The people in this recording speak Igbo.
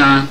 John